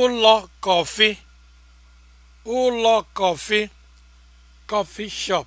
ụlọ kọfị ụlọ kọfị kọfị shop